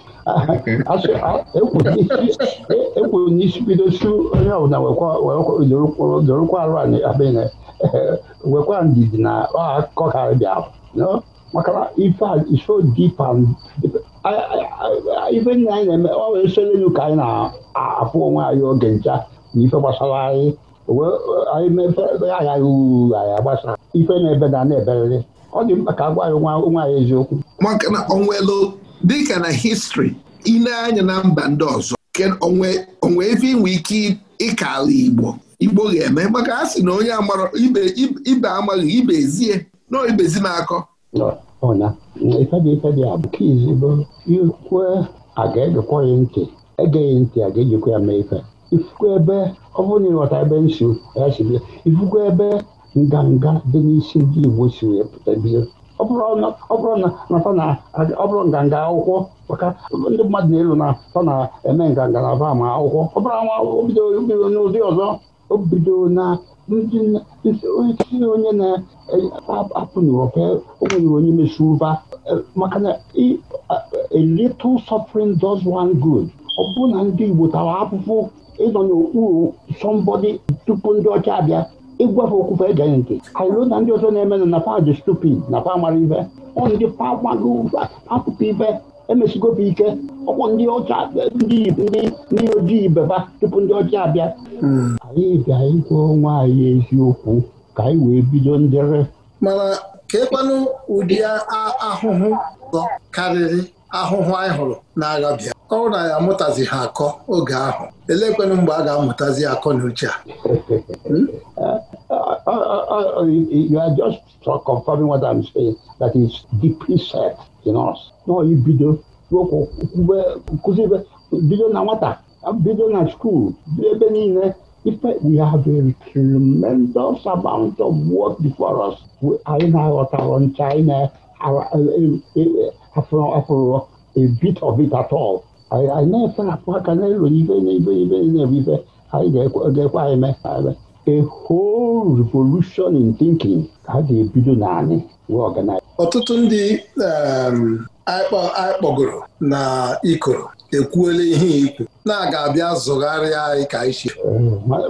S3: ekwu n'isi bidosi onye ọbụla dorokwa arụ anyị abịa wekwa ndidi na akụkọ ka bịa maka ife dipa ife nna anyị na-eme ọ wee soro elu ka anyị na-afụ onwe anyị oge ncha na ife gbasara anyị anyị mepe aghaghị uru anyị
S5: agbasa ife na ebe na-eberịrị na ọ dị mkpa ka a gwa anyị nwa anyị eziokwu dịka na histri ile anya na mba ndị ọzọ onwe ebe inwe ike ịkala igbo igbo ga-eme maka a sị na onye amara ibe amaghị ibe ezie nọọ ibezi na-akọ
S3: ikwue a ga-egekwa ya ntị egeghị ntị a ga-ejikwa ya mee ife ifukwa ebe ọ bụrụ na ịghọta ebe nsogbu ya si bịa ifukwa ebe nganga dị n'isi ndị igbo si wee pụta bido ọ bụrụ na ọ bụrụ nganga akwụkwọ maka ndị mmadụ na-elu na fa na-eme nganga na aba ma akwụkwọ ọ bụrụ anwa obido n'ụdị ọzọ o bido na isi onye na-apụ n'ụrọfe o onye mesi ụba e, maka na a little suffering does one good ọ bụrụ na ndị Igbo tawa apụpụ ịnọ n'okpuru somebody tupu ndị ọcha abịa ịgwa ha okwu fa ege nke anyị na ndị ọzọ na-emenụ na fadị stupid na fa mara ife ọ ndị pagbago akụkọ ife emesigoba ike ọkwọ ndị ọcha ndị ndị ojii beba tupu ndị ọcha abịa anyị ga ịgwa onwe anyị eziokwu ka anyị wee bido ndere
S4: mana ka ụdị ahụhụ karịrị ahụhụ anyị hụrụ n'agha bịa ọ na ya amụtazi ha akọ oge ahụ elekwenụ mgbe a ga-amụtazi akọ na uche a hmm? uh,
S5: uh, uh,
S3: you are just confirming what I'm saying that is deeply set in us n'ibido kụzibe bido na nwata bido na skuul bido ebe niile ife we have a tremendous amount of work before us anyị na-aghọtara ncha anyị na afro afro a bit of it at all anyị anyị na-efe apụ aka n'elu ibe n'ibe ibe na-ebu ibe anyị ga-ekwe anyị mee a whole revolution in
S4: thinking ka ha ga-ebido naanị wee ọganize ọtụtụ ndị um, anyị kpọgoro na ikoro ekwuola ihe ikwu na-aga abịa zụgharịa anyị ka anyị si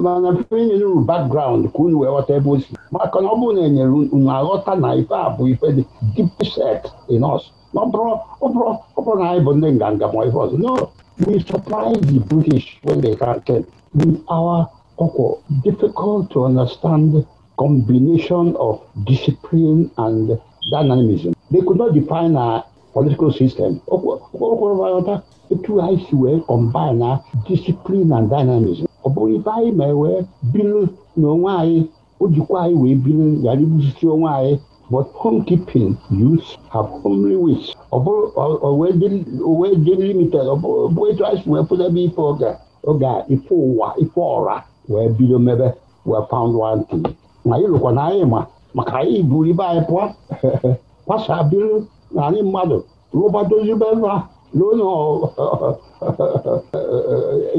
S4: mana enyere e uru background ka unu wee ghọta ebe o si maka na ọ
S3: bụrụ na enyere unu aghọta na ife a bụ ife dị deepset in ọ bụrụ na anyị bụ ndị nganga ma ife ọzọ no we supply the british when they came with our ọkwọ difficult to understand combination of discipline and dynamism they could not define our political system ọkwọrọta etu anyị si wee combine na discipline and dynamism ọ bụrụ ife anyị ma wee biri onwe anyị o jikwa anyị wee biri ibuzisi onwe anyị but home keeping youths have homely wits wee dị limited bụ etu anyị si wee ife oge a ife ụwa ife ọra wee bido mebe wee found one thing ma anyị lụkwa na anyị ma maka anyị buru ibe anyị [LAUGHS] pụọ kwasa biri na anyị mmadụ rụba dozibe nra n'ụlọ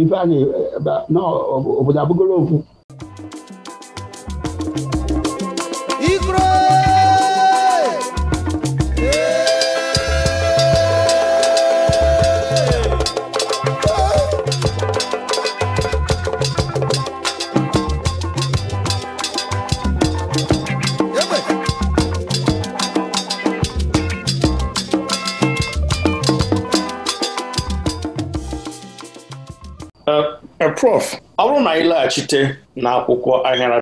S3: ife anyị n'obodo abụgolo okwu
S2: Prof ọ bụrụ na anyị laghachite n'akwụkwọ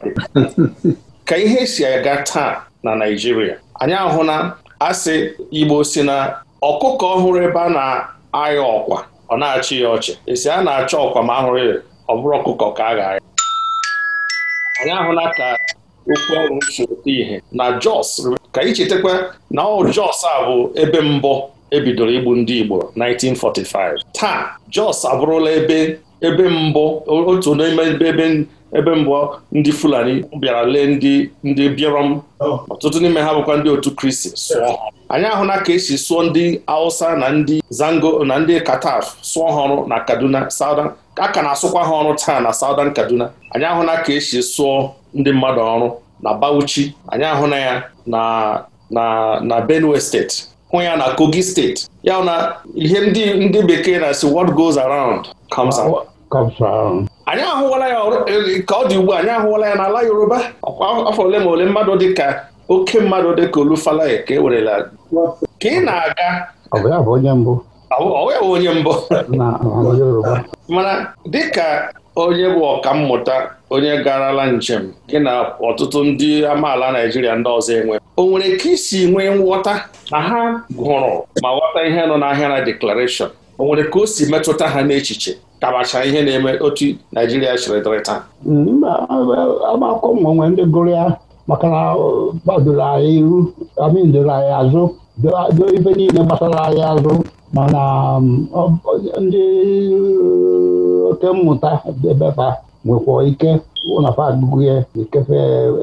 S2: dị [LAUGHS] ka ihe si aga taa na Naijiria, anyị ahụ na asị Igbo si na ọkụkọ ọhụrụ ebe a na aya ọkwa ọ na-achị ya ọchị esi a na-achọ ọkwa ma ahụrụ ya ọ bụrụ ọkụkọ ka a ga-ayọ anyị ahụla ka okwu ọrụ si ihe na Jos ka anyị chetakwa na ọ Jos a bụ ebe mbụ ebidoro igbu ndị Igbo 1945 taa Jos abụrụla ebe ebe mbụ otu n'ime ebe ebe mbụ ndị Fulani bịara lee ndị ndị Birom oh. ọtụtụ n'ime ha bụkwa ndị otu Kristi sụọ anyị ahụla ka esi sụọ ndị Hausa na ndị Zango na ndị Kataf sụọ ha ọrụ na Kaduna Southern a ka na-asụkwa ha ọrụ taa na saudan Kaduna anyị ahụla ka esi sụọ ndị mmadụ ọrụ na Bauchi anyị ahụla ya na na na Benue steeti hụ ya na Kogi steeti ya na ihe ndị ndị bekee na-asị what goes around anyị ahụwala ya e, ka ọ dị ugbu anyị ahụwala ya n'ala Yoruba afọ ole ma ole mmadụ dị ka oke mmadụ dị ka Olufalaye ka e werela ka ị na-aga
S3: ọ ya bụ
S2: onye mbụ mana dịka onye bụ ọkammụta onye garala njem gị na ọtụtụ ndị amaala Naijiria ndị ọzọ enwe o nwere ka isi nwee nghọta na ha gụrụ ma ghọta ihe nọ n'ahịa na deklarashọn o nwere ka o si metụta ha n'echiche kabacha ihe na-eme otu Naijiria chọrọ dịrị taa
S3: agbakọ ndị gụrụ ya maka na gbadoro anyị iru amindoro anyị azụ doo ibe niile gbasara anyị azụ mana um, ndị uh, oke mmụta debeba nwekwa ike ụnafa agụgụ ya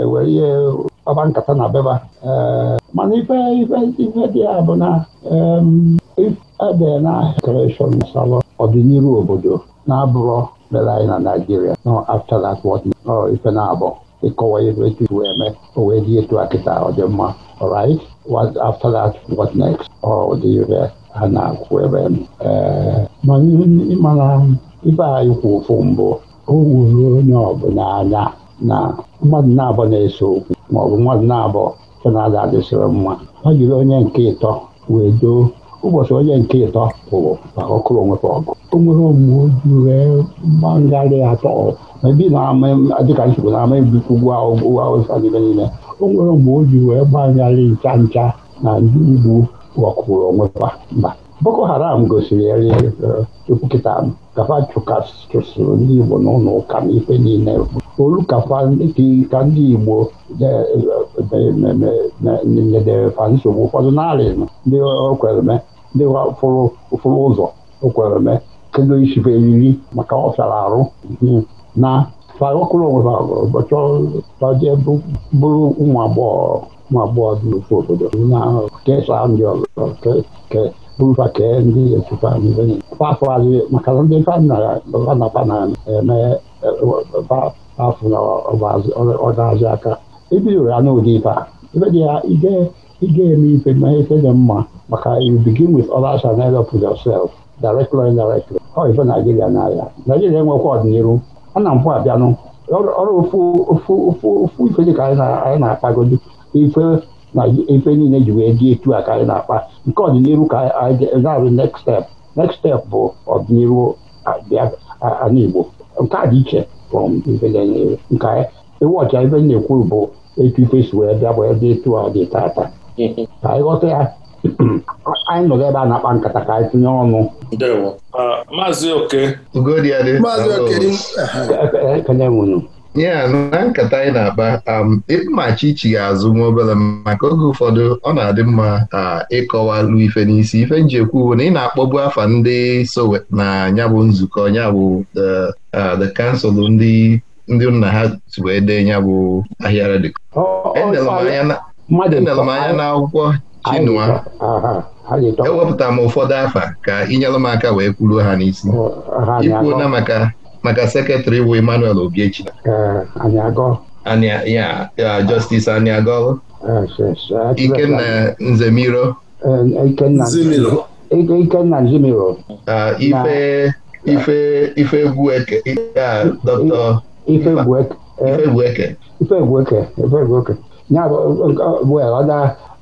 S3: ewere ihe kpaba nkata na beba eh, mana ife dị ya bụ na um, Ebee, na restoration salon ọdịnihu obodo na-abụrọ mere anyị na Naịjirịa nọ after that what nọrọ ife na-abụ ịkọwa ebe etu iwe eme o wee dị etu a kịta ọ dị mma right what after that what next ọ dị ire ha na-akwụ ebe mana ịmara ibe anyị kwu ụfụ mbụ o wuru onye ọbụla anya na mmadụ na-abọ na eso okwu maọbụ mmadụ na-abọ fe na-ada adịsịrị mma ọ jiri onye nke ịtọ wee doo ụbọchị onye nke ịtọ pụrụ maka ọkụrụ onwepụ ọgụ o nwere wee atọ ebi dịka nsogbu na ama ebikwu ugwu awụsa n'ime niile o nwere omume ojii wee gbagharị ncha ncha na ndị ugbu ọkụrụ onwekwa mba boko haram gosiri chukwu kịta kafa chụsịrị ndị igbo n'ụlọ ụka na ife niile olu kafa ka ndị igbo nyedere fa nsogbu ụfọdụ narị ndị o mee ndị ụfụrụ ụfụrụ ụzọ o kwere me kedu isibe eriri maka ọ fịara arụ na faokolowe ụbọchị taje bụrụ ụmụ agbọghọ ụmụ agbọghọ dị n'ofe obodo e ndị ọzọ bụrụfa ke ndị etufa afọ adịghị maka na ndị na-eme afọ na ọ aka ebidoro ya n'ụdị ife a ebe dị ya ige eme ife na ife dị mma maka you begin with others and end up with yourself directly or indirectly ọ ife Naijiria n'ahịa Naijiria enwekwa ọdịnihu a na mpụ abịanụ ọrụ ofu ife dị ka anyị na-akpagodi ife na ife niile ji wee dị etu a ka anyị na-akpa nke ọdịnihu ka anyị ga-arụ next step next step bụ ọdịnihu Igbo nke a dị iche nke ịwọcha ife na-ekwu bụ etu ife si wee bịa bụ ebe etu ọ dị taata. ka anyị ghọta ya [CLEARS THROAT] anyị nọgị ebe a na-akpa
S1: nkata ka anyị tinye ọnụ
S2: maazị oke
S1: kenye nwunye ya na nkata anyị na-akpa um, ịkpụmachi ichi ga-azụ nwa obere maka oge ụfọdụ ọ na-adị mma ịkọwalu ife n'isi ife njekwu bụ na ị na-akpọbu afa ndị Sowe na ya bụ nzukọ ya bụ the council ndị ndị nna ha wee dee ya bụ ahịara dị mmadụ nele m anya n'akwụkwọ Chinua ewepụta m ụfọdụ afa ka ha! m aka wee kwuru ha n'isi ikwuona maka maka sekretrị bụ Emmanuel Ogechi ya Justice Aniagol Ikenna Nzemiro Ikenna ife ife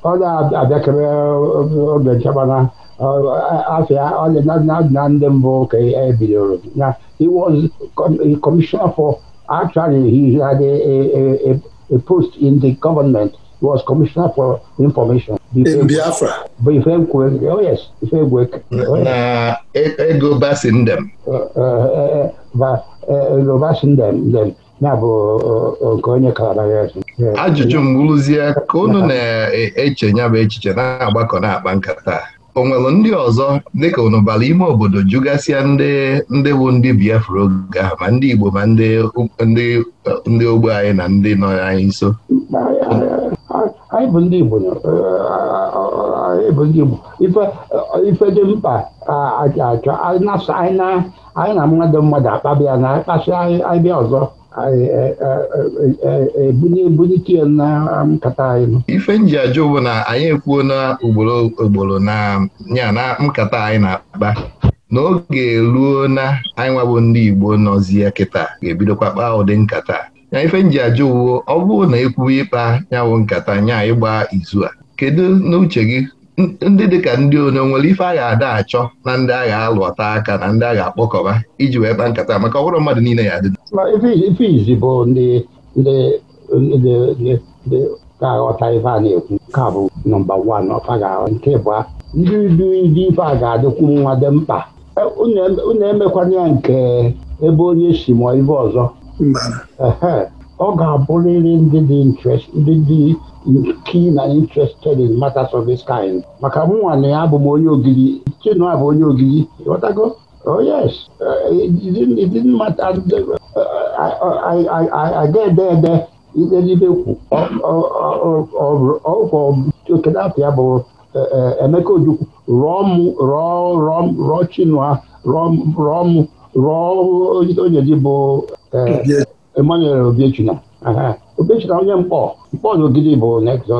S3: ọ na-abịakere oge nchebana afịa na ndị mbụ ka ebidoro na he was commissioner for a, post in the government he was commissioner for information Biafra oh,
S1: na e, ego uh, uh, uh,
S3: ego bụ nke onye kalabara ajụjụ
S1: mgbụrụzie ka unu na-eche ya bụ echiche na-agbakọ na-akpa nkata o nwere ndị ọzọ dịka unu ime obodo jụgasịa ndị ndị bụ ndị Biafra oge ahụ ma ndị Igbo ma ndị ogbe anyị na ndị nọ anyị nso
S3: anyị bụ ndị Igbo ife dị mkpa achọ anyị na mmadụ mmadụ akpabịa na akpasị anyị bịa ọzọ ebunye e, e, e, ebunite na nkata
S1: um, anyị ife nji ajụ na anyị ekwuo na ugboro ugboro na ya na nkata anyị na-akpa n'oge ruo na anyị nwabụ ndị Igbo nọzi ya kịta ga-ebidokwa kpaa ụdị nkata ya ife nji ajụwo ọ bụrụ na ekwuo ịkpa nyawụ nkata nya ịgba izu a kedu n'uche gị ndị dị ka ndị onye nwere ife a ga-ada achọ na ndị a ga-alụ ọta aka na ndị a ga-akpọkọba iji wee kpa nkata maka ọhụrụ mmadụ niile ya adị
S3: ife izi bụ ndị ka aghọta ife a na-ekwu ka bụ nọmba wan nke bụa ndị du ndị a ga-adịkwu nwa dị mkpa e, unu e, emekwana ya nke ebe onye si mụọ ibe ọzọ ọ ga-abụrịrị ndị dị interest ndị dị key na interested in matters of this kind maka mụnwa na ya abụ m onye ogidi Chinua bụ onye ogidi ghọtago, Oh yes, uh, ede ede it didn't matter. I, I, I, I, I get there, there. Ibe kwu ọkeda afọ ya bụ Emeka Ojukwu rụọ m rọ rụọ Chinua rụọ m rụọ onye ji bụ Emmanuel Obiechina Obiechina onye mkpọ mkpọ na bụ next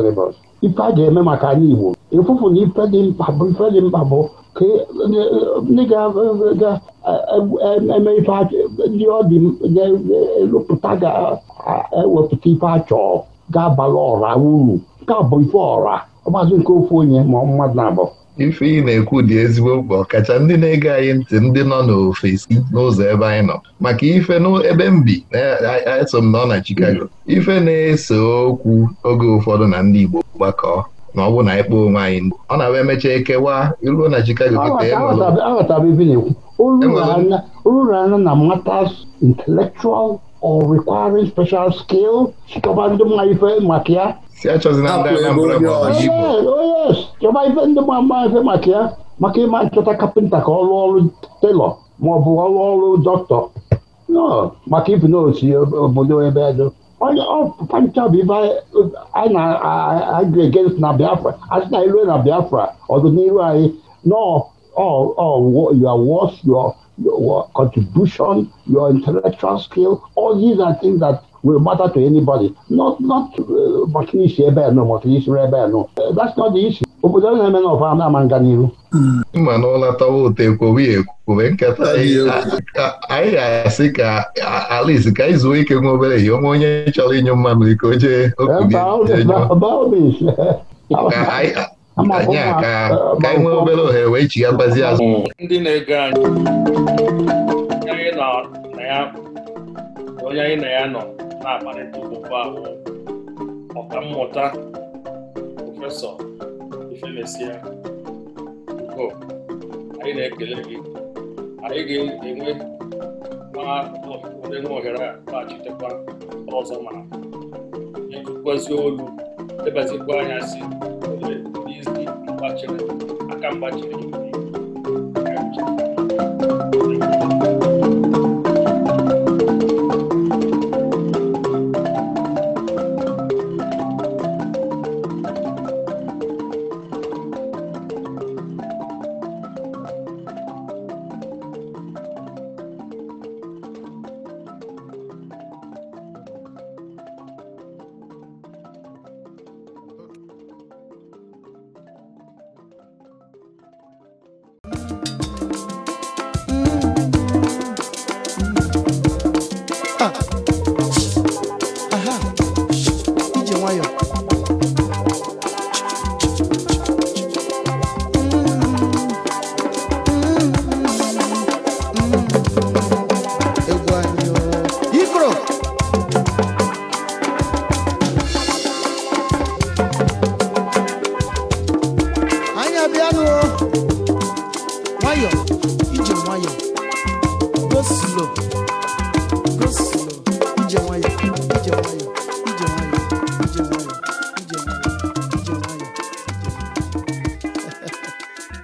S3: ife a ga-eme maka anyị Igbo ịfụfụ na ife dị mkpa bụ ife dị mkpa bụ ka e, ndị ga-eme e, e, ndị ọ dị ga-elụpụta ga-ewepụta ife achọọ ga abara ọra
S1: uru nke ọ bụ ife ọra ọgbazụ nke ofu onye ma mmadụ na-abụ ife ị na-ekwu dị ezigbo mkpa ọkacha ndị na-ege anyị ntị ndị nọ n'ofesi n'ụzọ ebe anyị nọ maka ife n'ebe m bi eso m nọ na Chicago ife na-ese okwu oge ụfọdụ na ndị Igbo gbakọọ na ọ bụ na anyị onwe anyị ndụ ọ na-abụ emechaa ekewa iruo na Chicago oruru anya na matters
S3: intellectual or requiring special skill chịkọba ndị mma ife maka ya
S1: si achọzina ndị Anambra bụ
S3: chọba ife ndị gbamgba ife maka ya maka ịma nchọta kapịnta ka ọ rụọ ọrụ telọ maọbụ ọrụ ọrụ dọkịta maka ibi n'otu obodo ebe edo onye ọpancha bụ ibe anyị na-agregate na Biafra asị na ilue na Biafra ọdịnihu anyị your worth your contribution your intellectual skill all these are things that will matter to anybody not not maka isi ebe
S1: a nọ maka ebe a nọ that's not the issue obodo a na-eme na na-ama nga n'iru mma na ọlatawa ụtọ ekwowe ekwube nkata anyị ga-asị ka alice ka anyị zuo ike nwa obere ihe onwe onye chọrọ inye mmanụ iko jee okubie anyị aka ka anyị nwee obere ohere wee chighakwazi azụ mm.
S2: ndị na-ege anyị onye anyị na ya nọ na-akparịta ụbụba abụọ ọka mmụta prọfesọ Ifemesia ugo anyị na-ekele gị anyị ga-enwe nwa ohere a laghachitekwa ọzọ ma nyekụkwazi olu debazikwa anya si n'izi mgbachiri aka mgbachiri